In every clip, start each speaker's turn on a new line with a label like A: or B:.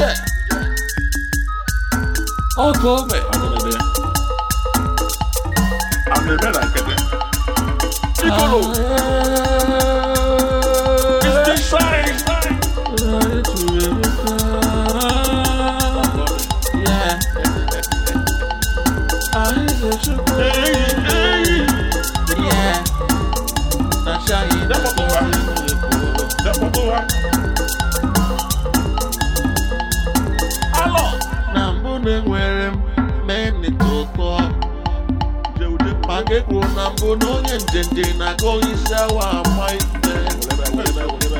A: Gdzie? O, kome! A to dobie. A my bela Yeah.
B: That's how you do it.
A: ume nwere menitụtọ maka ekwuru na mbụ na onye nje nje na-aga onye isi awa ama ife ịbụrụ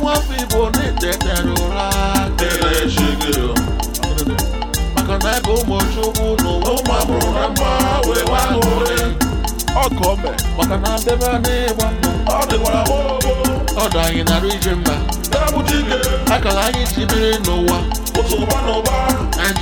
A: nwafọ igbo na-etetara ụra maka na ebe ụmụchukwu n'ụwa ụmụ amụrụ na mma wee ahụ ọkọmbe maka na mbebe a na-egba mbọ ọdụ anyị narụ ije mba akala anyị ji biri n'ụwa ụtụ ụba n'ụba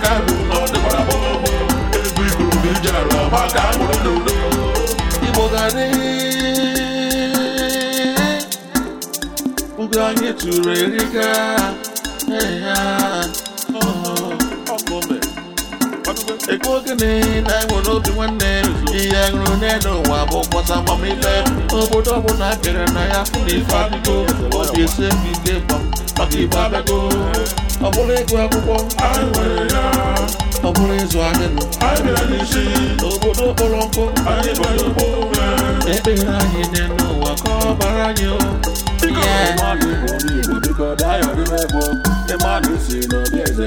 B: aka ọ dịkwara bọọbọ ego iguru bụ iji arụ ọgba ka a mụrụ
A: n'udo anyị tụrụ erika Ego gịnị na-enwe obi nwanne ihe ṅụrụ n'elu ụwa bụ mkpọta amamife obodo ọbụla bịara na ya fụ ife adịgo obi maka igbo ọ bụrụ ịgụ akwụkwọ ọ bụrụ ịzụ ahịa obodo kpọrọ nkụ ekpere anyị dị n'ụwa ka ọ bara anyị
B: mmadụ si n'obi eze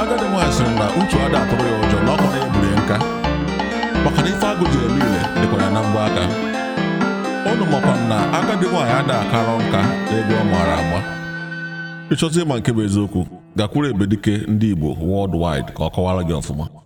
A: agadi nwaanyị sịrị na uche ada atụrụ ya ụjọ na ọkpọrọ na biri nka maka na ife agụ ji eme ile dịkwara na mgba aka ọnụ makwa na agadi nwaanyị
B: ada akarọ nka
A: ego ọ maara agba ịchọta ịma nke bụ eziokwu gakwuru ebedike ndị igbo worldwide ka ọ kọwara gị ọfụma